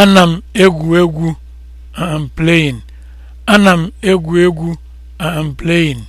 Ana m egwu egwu. I am playing. Ana m egwu egwu. I am playing.